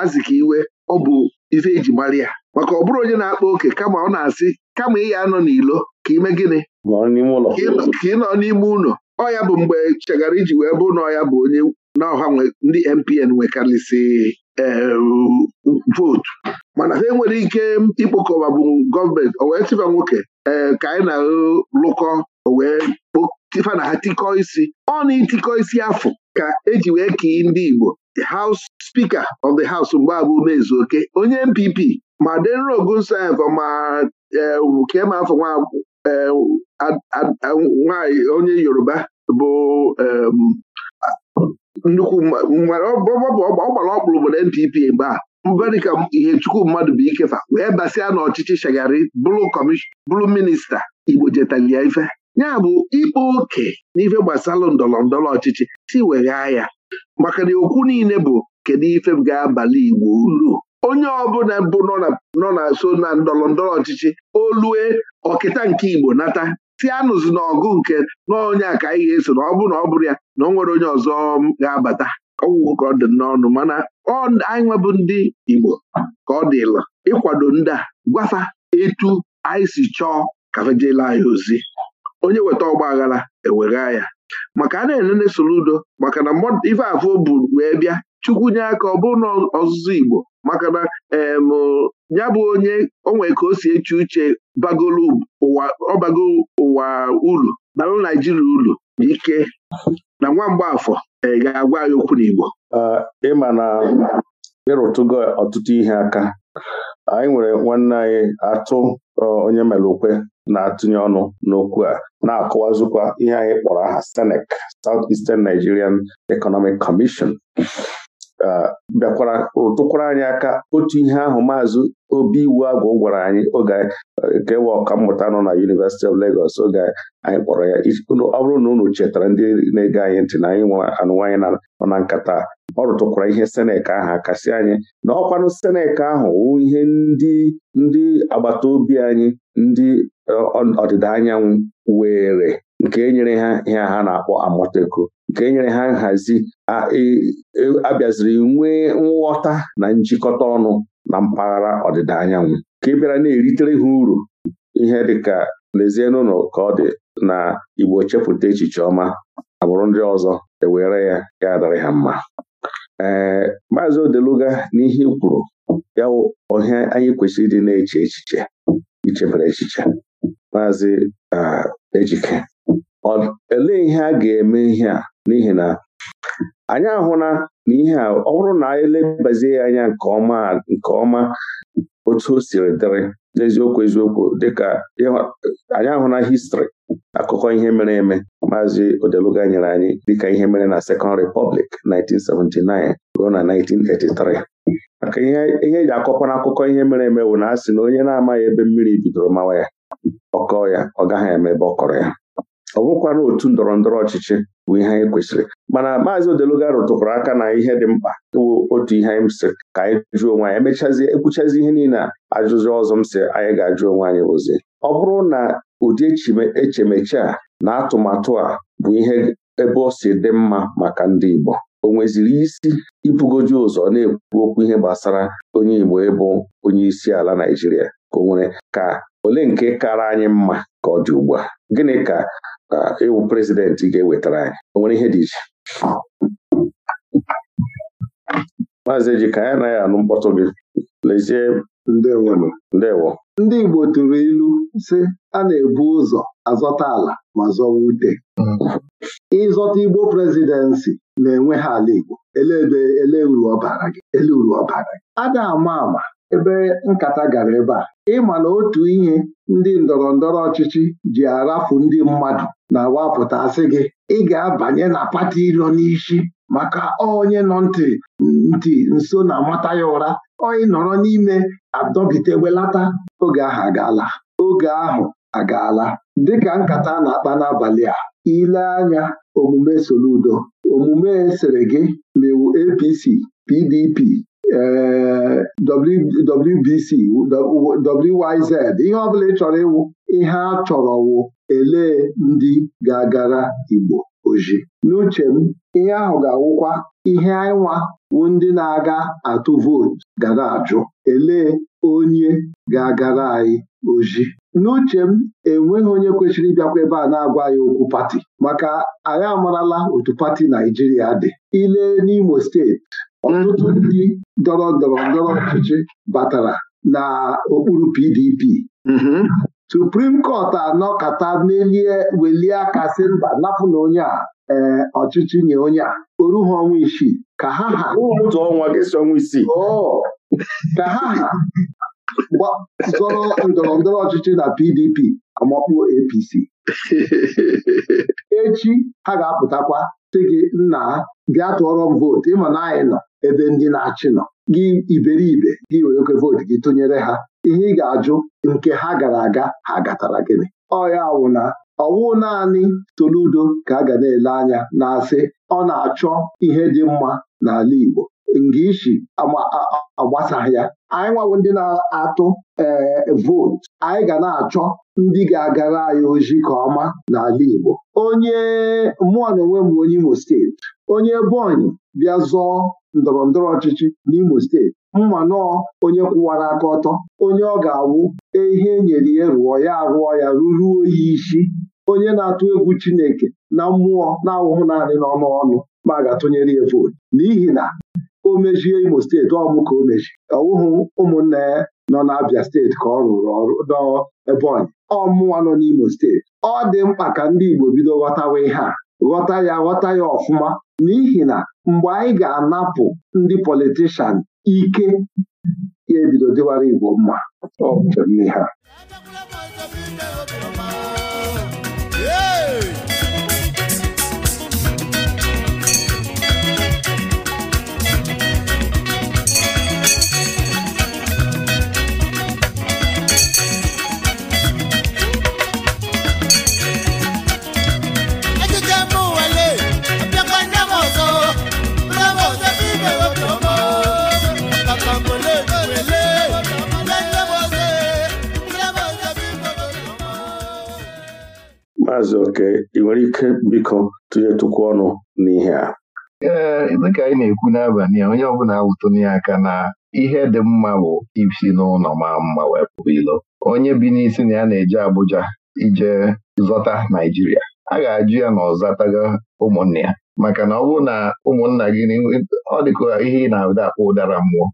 Azikiwe ọ bụ ife eji mara maka ọ bụrụ onye na-akpa oke kama ọ na-asị kama ị ya nọ n'ilo ka ime gịnị ka ị nọ n'ime ụlọ ọ ya bụ mgbe e chegara iji wee bụ na ọya bụ onye na ọha ndị MPN nwekarịsị eh, vootu mana ha enwere ike ịkpokọba bụ gọọmenti o wee tịba nwoke ee eh, ka anyị na-alụkọ o wee tịfa na ha tikọ isi ọ na itikọ isi afọ ka eji wee kee ndị Igbo House Speaker of the House mgbe abụ mezu oke onye MPP ma Denro Ogunsanyị ma Eh, kee ma afọ nwanyị eh, onye yoruba bụ nnukwu ọ gbara ọkpụrụ obodo NPP mgbe a mba ihe chukwu mmadụ bụ ikefa wee basịa n'ọchịchị ọchịchị shagari bụrụ minista igbo jetalia ya ife ya bụ ịkpa oke n'ife gbasara ndọrọ ndọrọ ọchịchị si weghaa ya maka na okwu niile bụ kedu ife ga-abalị igbo ulu onye ọbụla bụ nọ na so na ndọrọ ndọrọ ọchịchị olue ọkịta nke Igbo nata si anụzi na ọgụ nke n'onye a ka anyị ga-eso na ọ bụrụ na ọ bụrụ ya na ọ nwere onye ọzọ ga-abata ọgwụgwọ ka ọ dị n'ọnụ mana anyị nwebụ ndị Igbo ka ọ dịla ịkwado ndị a gwafa etu anyị si chọọ ka fejela anyị ozi onye weta ọgba aghara ewegha ya maka a na-enene soludo udo maka na ife afọ bụ wee bịa chukwu nye aka ọ bụrụ na ọzụzụ Igbo maka na ya bụ onye onwe ka o si eche uche bagolu ụwa ọbago ụwa ulu balụ naijiria ulu ike na nwa mgbaafọ e, ga-agwa anyị okwu n'Igbo ịma na ịrụtụgo ọtụtụ ihe aka anyị nwere nwanne anyị atụ onye mere na-atụnye ọnụ n'okwu a na-akọwazụkwa ihe anyị kpọrọ aha SENEC South Eastern Nigerian Economic Commission bịakwara rụtụkwara anyị aka otu ihe ahụ maazị obi iwu agwụ gwara anyị oge nke wa mmụta nọ na yunivesiti of Lagos oge anyị kpọrọ ya ọ bụrụ na unu chetara ndị na-ege anyị ntị na anyị nwe anụwanyị nọ na nkata ọ rụtụkwara ihe senek ahụ akasị anyị na ọkwanụ senek ahụ wụ ihe ndị ndị agbata obi anyị ndị ọdịda anyanwụ were nke nyere ha ihe ha na-akpọ amọteko nke nyere ha nhazi abịaziri e, e, nwee nghọta na njikọta ọnụ na mpaghara ọdịda anyanwụ ka ị e bịara na-eritere ha uru ihe dịka lezie n'ụlọ ka ọ dị na Igbo chepụta echiche ọma agbụrụ ndị ọzọ ewere ya ya dịrị ha mma ee maazị Odeluga n'ihe kwuru ya ọhịa anyị kwesịrị ịdị na-eche echiche ichebere echiche maazị ejike olee ihe a ga-eme ihe a n'ihi na anyị ahụla na ihe a ọ bụrụ na anyị elebazie anya nke ọma otu o siri dịrị n'eziokwu eziokwu dịka anyị ahụla histri akụkọ ihe mere eme maazị Odeluga nyere anyị dịka ihe mere na Second Republic 1979 ruo na 1983 maka ihe eji e akọkwa akụkọ ihe mere eme bụ na a sị na onye na-amaghị ebe mmiri bidoro mawa ya ọkọ ya ọ gaghị eme ebe ọ kọrọ ya ọ bụrụkwana otu ndọrọ ndọrọ ọchịchị bụ ihe anyị kwesịrị mana maazị odeluga rụtụkwara aka na ihe dị mkpa wụ otu ihe anyị sị ka anyị jụọ onwe anyị emechazie ekwuchazi ihe niile a ajụjụ ọzọ m sị anyị ga-ajụ onwe anyị bụzi ọ bụrụ na ụdị echemeche a na atụmatụ a bụ ihe ebe o si dị mma maka ndị Igbo o nweziri isi ibugoju ụzọ na-ekwu okwu ihe gbasara onye Igbo ịbụ onye isi ala Naịjirịa ka o nwere ka ole nke kara anyị mma ka ọ dị ugbu a gịnị ka ịwụ prezidenti ga-ewetara anyị o nwere ihe dị iche maazị ejika ya anaghị anụ mkpọtụ gị lezie ndewo ndị Igbo tụrụ ilu si a na-ebu ụzọ azọta ala ma zọwa ute ịzọta Igbo prezidensị na-enwe ha ala Igbo ele ebe ele uru ọbara gị ele uru ọbara gị a na-ama ama ebe nkata gara ebe a ịma na otu ihe ndị ndọrọ ndọrọ ọchịchị ji arafu ndị mmadụ na-awapụtasị gị ị ga-abanye na pati ilo n'isi maka onye nọ ntị ntị nso na amata ya ụra onye nọrọ n'ime adọbite welata oge ahụ agaala oge ahụ agaala dịka nkata na-akpa n'abalị a ile anya omume Soludo omume sere gị mewu APC PDP WBC WYZ ihe ọbụla ị chọrọ ịwụ ihe a chọrọ wụ elee ndị ga-agara Igbo oji n'uche m ihe ahụ ga-awụkwa ihe ịnwa wụ ndị na-aga atụ vootu gara ajụ elee onye ga-agara anyị oji n'uche m enweghị onye kwesịrị ịbịakwa ebe a na-agwa ya okwu pati maka anyị amarala otu pati Naijiria dị ile n'Imo steeti ọtụtụ ndị ndọrọ ndọrọ ndọrọ ọchịchị batara na okpuru PDP mm-hmm. Supreme Court anọkata melie welie aka sị mba napụ na onye a eh, ọchịchị nye onye a ha ọnwa isii ka ha ha ka ha ha zọrọ ndọrọ ndọrọ ọchịchị na PDP amakpuo APC <laughs> echi ha ga-apụtakwa sị gị nna bịa tụọrọ m vootu ịma na anyị nọ ebe ndị na-achị nọ gị iberibe gị werekwe vootu gị tụnyere ha ihe ị ga-ajụ nke ha gara aga ha gatara gịnị ọya wụna na ọwụ naanị toludo ka a ga na-ele anya na-asị ọ na-achọ ihe dị mma n'ala Igbo nga ishi agbasaghị ya anyị nwawo ndị na-atụ ee eh, vootu anyị ga na-achọ ndị ga-agara anyị ojii ka ọma n'ala Igbo onye mụọ na onwe m onye Imo steeti onye Ebonyi bịa zọọ ndọrọ ndọrọ ọchịchị n'Imo steeti mma nọọ onye kwụwara aka ọtọ onye ọ ga-awụ e ihe e nyere ya rụọ ya arụọ ya ruruo ya isi onye na-atụ egwu Chineke na mmụọ na-awụhụ naanị n'ọnụ ọnụ ma a ga-atụnyere ya vootu n'ihi na o mejie Imo steeti bụ ka o meji ọwụhụ ụmụnna ya nọ n'Abia steeti ka ọ rụrụ ọrụ n'Ebonyi ọmụwa nọ n'Imo steeti ọ dị mkpa ka ndị Igbo bido ghọtawa ihe a ghọta ya ghọta ya ọfụma n'ihi na mgbe anyị ga-anapụ ndị politishan ike ya ebido dịwara Igbo mma ọ bụ ha Maazị Oke ị nwere ike biko tụnyetụkwu ọnụ n'ihe a ee dịka anyị na-ekwu n'abalị a onye ọbụla awụtonye aka na ihe dị mma bụ isi n'ụlọ ma mma wee pụba ilo onye bi n'isi na ya na-eje Abuja ije zọta Naijiria a ga-ajụ ya na ọzataga ụmụnne ya maka na ọ bụrụ na ụmụnna gị ọ dịka ihe ị na-abịa akpọ ụdara mmụọ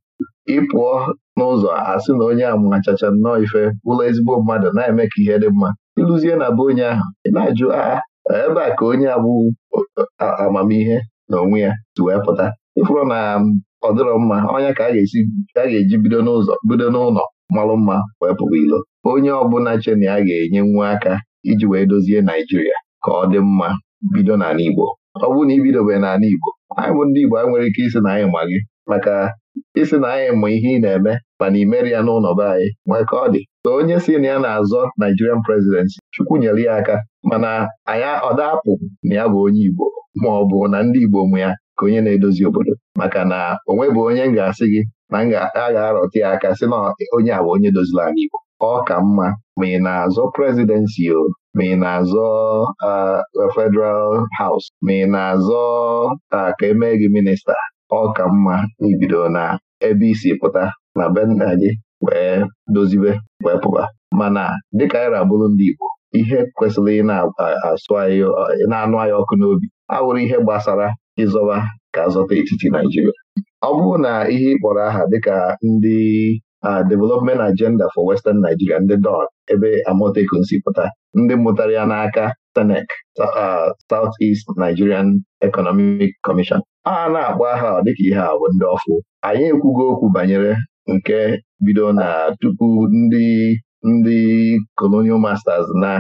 ị pụọ n'ụzọ si na onye a machacha nnọọ ife ụlọ ezigbo mmadụ na-eme ka ihe dị mma ịlụzie na be onye ahụ ị na-ajụ agha ebe a ka onye agbụ amamihe na onwe ya si wee pụta ịfụrụ na ọ dịrọ mma ọnya ka a ga-eji bido n'ụzọ bido n'ụlọ malụ mma wee pụba ilo onye ọbụla che a ya ga-enye nwa aka iji wee dozie Naijiria ka ọ dị mma bido n'ala Igbo ọ bụrụ na ibidobe n'ala Igbo anyị bụ ndị Igbo anyị nwere ike isi na anyị ma gị maka isi na anyị mụ ihe ị na-eme mana imeri ya n'ụlọ anyị nwee ka ọ dị ka onye si na ya na-azọ Nigerian presidency Chukwu nyere ya aka mana anya ọdapụ na ya bụ onye Igbo ma ọ bụ na ndị Igbo mụ ya ka onye na-edozi obodo maka na onwebụ onye m ga-asị gị na m ga-arọta ya aka sị na onye a bụ onye dozila anyị. Igbo ọ ka mma ma ị na-azọ presidency o ma ị na-azọ uh, Federal Haus? ma ị na-azọ uh, ka emee gị minista ọ ka mma n'ibido na ebe isi pụta na be nna gị wee dozibe wee pụba mana dịka anyị abụrụ ndị Igbo ihe kwesịrị ị na-asụ anyị na-anụ anyị ọkụ n'obi awụrụ ihe gbasara ịzọba ka azọta etiti Naijiria ọ bụrụ na ihe ị kpọrọ aha dịka ndị Development Agenda for Western Nigeria ndị Don ebe Amotekun si pụta ndị mụtara ya n'aka SENEC South East Nigerian Economic Commission a na-akpọ aha dịka ihe a bụ ndị ọfụ anyị ekwugo okwu banyere nke bido na tupu ndị ndị colonial masters na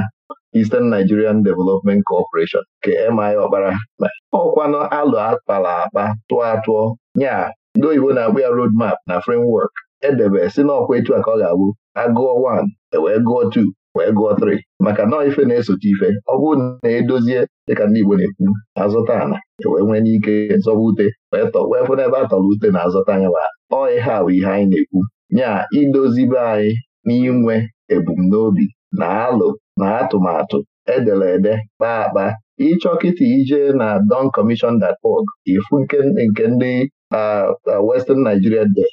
Eastern Nigerian Development Corporation nke MI Ọkpara ọkwanụ alụ akpara akpa tụọ atụọ nya ndị oyibo na-akpụ ya road map na framework edebe si n'ọkwa etu a ka ọ ga-abụ agụọ 1 ewee gụọ 2 wee gụọ 3 maka nọọ ife na-esote ife ọ bụrụ na edozie dịka ndị Igbo na-ekwu azụta ala e wee nwee n'ike zọba ute wee tọ wee fụ n'ebe a tọrọ ute na azụta anya wa ọ ihe a bụ ihe anyị na-ekwu nya idozibe anyị n'inwe ebumnobi na alụ na atụmatụ edere kpaa akpa ịchọ kịta ije na Don doncommission.org ifu nke ndị ah, ah, Western Nigeria de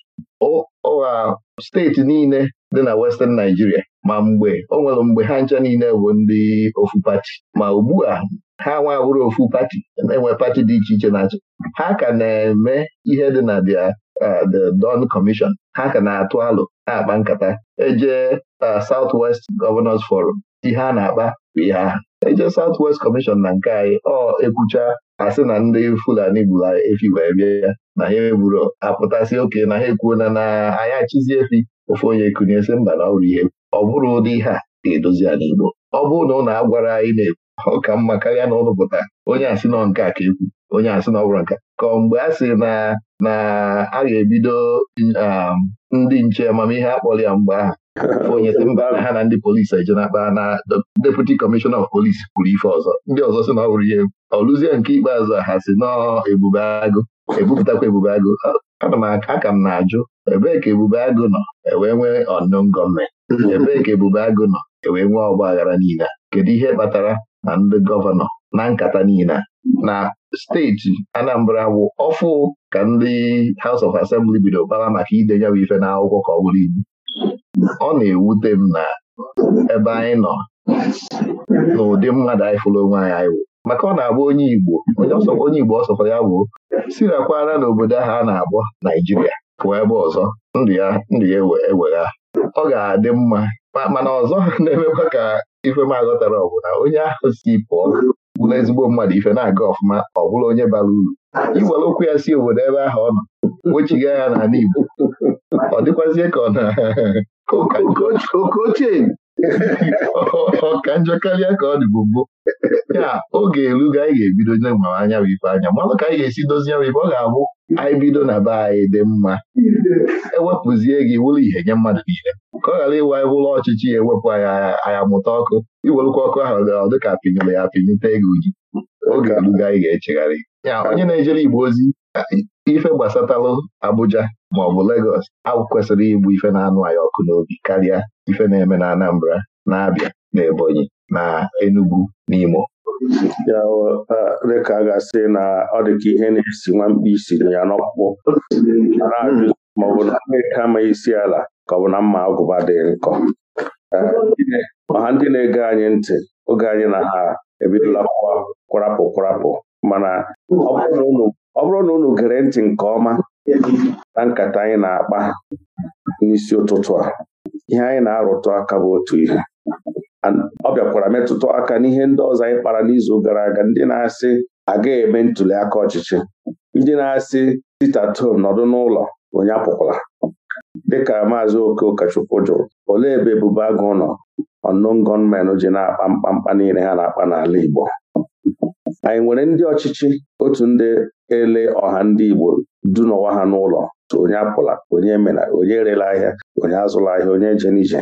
steeti niile dị na Western Nigeria ma mgbe o nwere mgbe ha ncha niile bụ ndị ofu pati ma ugbu a ha bụrụ ofu pati na-enwe pati dị iche iche na-achị ha ka na-eme ihe dị na uh, the Don Commission ha ka na-atụ alụ na-akpa nkata eje uh, South West Governors Forum ihe a na-akpa bụ ihe ahụ eje South West Commission na nke anyị ọ ekwucha asị na ndị Fulani gburu efi wee bịa ya na ha egburu apụtasị oke na ha ekwuona na anyị achịzi efi ofe onye sị mba na ọrụ ihe ọ bụrụ ụdị ihe a ga-edozi ya n'Igbo ọ bụrụ na ụlọ agwara anyị na-ekwu ọ ka mma karịa na ụlọ onye asị nọ nke a ka ekwu onye asị na ọ nka ka mgbe a sị na na a ga-ebido um, ndị nche amamihe akpọrọ ya mgbe ahụ onye ha na ndị polisi eje na-akpa na deputi kọmishọna of polisi kwuru ife ọzọ ndị ọzọ sị na ọ wụrụ ya ọlụzie nke ikpeazụ ha si n'ebube agụ ebupụtakwa ebube agụ ana m aka m na-ajụ ebee ka ebube agụ nọ ewee nwee ọnụn gọọmenti <laughs> ebee ka ebube agụ nọ ewee nwee ọgba aghara niile kedu ihe kpatara na ndị gọvanọ na nkata niile na steeti Anambra wụ ọfụ ka ndị House of Assembly bido kpara maka idenye bụ ife akwụkwọ ka ọ bụrụ igbu ọ na-ewute m na ebe anyị nọ n'ụdị mmadụ anyị fụrụ onwe anyị anyị maka ọ na agba onye Igbo onye Igbo ọsọkọ ya bụ sirakwara n'obodo ahụ a na agbọ Naijiria pụọ ebe ọzọ ndụ ya ndụ ya ewegha ọ ga-adị mma mana ọzọ <laughs> na-emekwa ka ife m aghọtara ọ bụ na onye ahụ si pụọ bụrụ ezigbo mmadụ ife na-aga ọfụma ọ bụrụ onye bara uru gwara okwu ya si obodo ebe ahụ ọ nọ wechiga ya n'ala Igbo ọ dịkwazie ka ọ na <laughs> okochie ọka njọ karịa ka ọ dịbụ mbụ ya oge erugo anyị ga-ebido ma anya bụ ife anya mmanụ ka anyị ga-esi dozie bụ ife ọ ga-abụ anyị bido na be anyị dị mma ewepụzie gị wụrụ ihe nye mmadụ niile ka ọ ghara ịwa ụlọ ọchịchị ya ewepụ anyị aya mụta ọkụ iwelụkwa ọkụ ahụ gara dịka apịnyere ya apịnyete ego ji oge erugo anyị ga-echegharị ya onye na-ejere Igbo ozi ife gbasatalụ Abuja maọbụ Legọs agwụ kwesịrị igbu ife na-anụ anyị ọkụ n'obi karịa ife na-eme na Anambra na-abịa na Ebonyi na Enugu n'Imo ya dịka a ga-asị na ọ dịka ihe na-esi nwa mkpi siri ya n'ọkpụkpụ maọbụ na Amerika ama isi ala ka ọ bụ na mma agụba dị nkọ ọha ndị na-ege anyị ntị oge anyị na ha ebidola kwarapụ kwarapụ mana ọ bụrụ na unu ọ bụrụ na unu gere ntị nke ọma na nkata anyị na-akpa n'isi ụtụtụ a ihe anyị na-arụtụ aka bụ otu ihe ọ bịakwara metụta aka n'ihe ndị ọzọ anyị kpara n'izu gara aga ndị na-asị agaghị eme ntuli aka ọchịchị ndị na-asị sitatom nọdụ n'ụlọ onye apụkwala dịka maazị okeụkọchukwu jụrụ olee ebe ebubo agụ nọ ọnụ gọọmenti ji na-akpa mkpamkpa niile ha na-akpa n'ala Igbo anyị nwere ndị ọchịchị otu ndị ele ọha ndị Igbo dunọwa ha n'ụlọ onye apụla onye mena onye erela ahịa onye azụla ahịa onye jen n'ije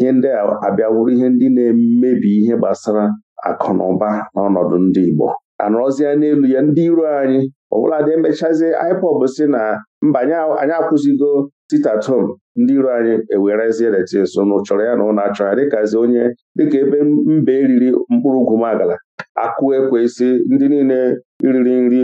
ihe ndị a abịawuru ihe ndị na-emebi ihe gbasara akụ na ụba n'ọnọdụ ndị Igbo anọrọzie n'elu ya ndị iro anyị ọbụla dị emechazie IPOB si na mba anyị akwụzigo titatom ndị iro anyị ewerezie so na chọrọ ya na ụlọ achọ ya dịkazi onye dịka ebe mba eriri mkpụrụ ugwu magala akụ ekwesị ndị niile riri nri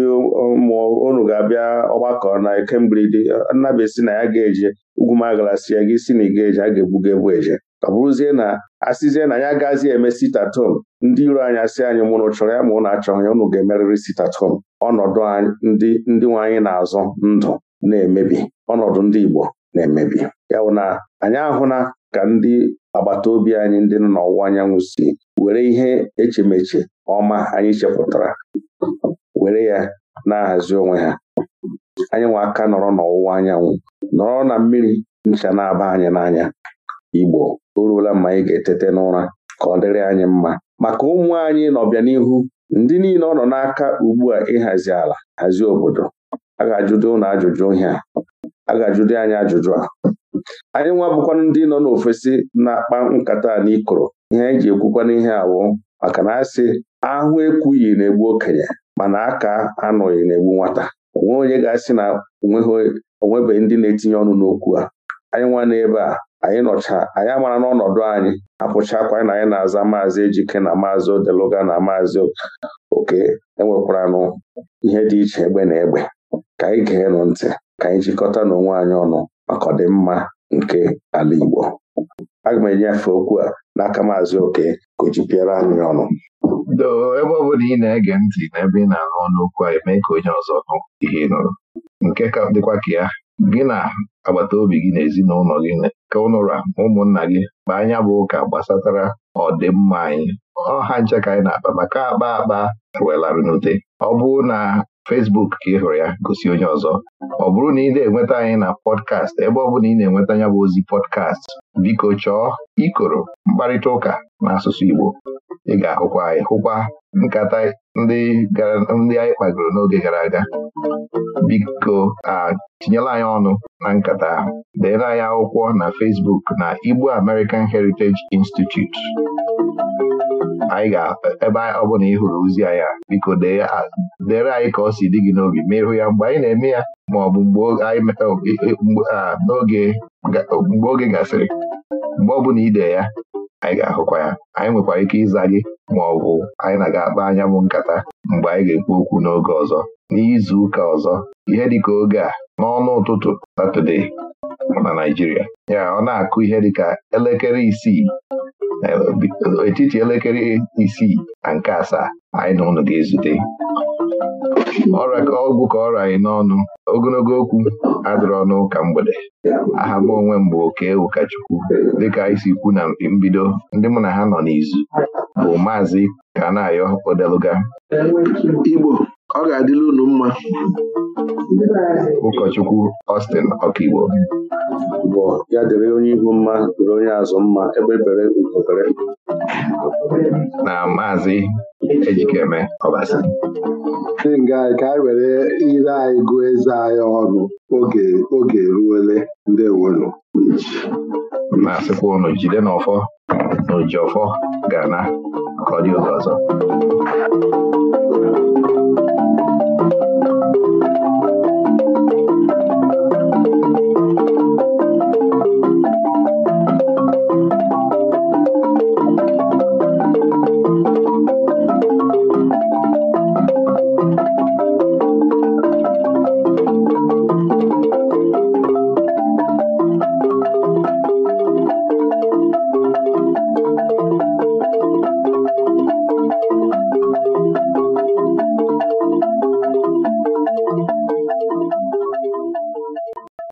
ụmụ unu ga-abịa ọgbakọ na ekemberede nnabesi na ya ga-eje ugwumagala si ya gị si na ịga eje a ga egbuga egbu eje ọ bụrụzie na asịzie na anyị agaghịzi eme sitatom ndị iro anyị asị anyị mụnụ chọrọ ya ma ụnụ achọghị ya ụnụ ga-emerịrị sitatom ọnọdụ ndị ndị nwe anyị na-azọ ndụ na-emebi ọnọdụ ndị Igbo na-emebi ya bụ na anyị ahụ na ka ndị agbata obi anyị ndị nọ n'ọwụwa anyanwụ si were ihe echemeche ọma anyị chepụtara were ya na-ahazi onwe ha nwe aka nọrọ n'ọwụwa anyanwụ nọrọ na mmiri ncha na-aba anyị n'anya Igbo o ruola mma anyị ga-etete n'ụra ka ọ dịrị anyị mma maka ụmụ anyị n'ọbịanihu ndị niile ọ nọ n'aka ugbu a ịhazi ala hazie obodo a ga-ajụdo ụnụ ajụjụ ihe a a ga-ajụdo anyị ajụjụ a anyị nwa bụkwa ndị nọ n'ofesi na-akpa nkata n'ikoro ihe anyị ji ekwukwana ihe awụ maka na asị ahụ ekwughị na-egbu okenye mana aka anọghị na-egbu nwata onwe onye ga-asị na onwebeghị ndị na-etinye ọnụ n'okwu a anyị nwa n'ebe a anyị nọcha anyị amara n'ọnọdụ anyị apụchakwa na anyị na-aza maazị ejike na maazị odeluga na maazị oke enwekwaranụ ihe dị iche egbe na egbe ka anyị gee nụ ntị ka anyị jikọta n'onwe anyị ọnụ ọkọdịmma nke ala Igbo aga m enyefe okwu a n'aka Maazị Oke ka o anyị ọnụ doo ebe ọ bụla ị na-ege ntị n'ebe ị na-anụ ọnụ a eme ka onye ọzọ nụ ihe nụrụ nke ka dịkwa ka ya gị na agbata obi gị na ezinụlọ gị ka ụnụra ụmụnna gị ma anya bụ ụka gbasatara ọdịmma anyị ọha nche ka anyị na-akpa maka akpa akpa welarị n'ute ọ bụrụ na Fesbuk ka ị hụrụ ya gosi onye ọzọ ọ bụrụ na ị na-enweta anyị na pọdkast ebe ọ bụ na ị na-enweta ya bụ ozi pọdkast biko chọọ ikoro mkparịta ụka n'asụsụ Igbo ị ga-ahụkwa hụkwa nkata ndị anyị kpagoro n'oge gara aga biko a tinyela anyị ọnụ na nkata ahụ deere anyị akwụkwọ na Facebook na Igbo American Heritage Institute anyị ga-ebe ọ bụla ị hụrụ ozi anya biko dere anyị ka ọ si dị gị n'obi ma ịhụ ya mgbe anyị na-eme ya ma ọ bụ mgbe e, n'oge mgbe oge gasịrị mgbe ọ na ide ya anyị ga-ahụkwa ya anyị nwekwara ike ịza gị ma ọ bụ anyị na-aga akpa anya mụ nkata mgbe anyị ga-ekwu okwu n'oge ọzọ n'izu ụka ọzọ ihe dị ka oge a n'ọnụ ụtụtụ Satọde na naijiria ya ọ na-akụ ihe dịka elekere isii etiti elekere isii na nke asaa anyị na ga-ezute ọra ka ọgwụ ka ọra anyị n'ọnụ ogologo okwu adịrọ ọnụ ka mgbede aha m onwe m bụ oke ụkọchukwu dịka isi kwu na mbido ndị mụ na ha nọ n'izu bụ maazị ka Kanayo Odeluga Igbo ọ ga-adịla unu mma ụkọchukwu Austin Ọkaigbo bụ ya dịrị onye ihu mma dịrị onye azụ mma ebe bere ugobere na maazị Ejikeme Ọbasi ndị nga anyị ka anyị were ire anyị gụọ eze anyị ọrụ oge eruole ndị wolu na-asịkwa ụnụ jide n'ọfọ na ojiọfọ Gana ana ka ọ dị oge ọzọ